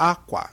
akwa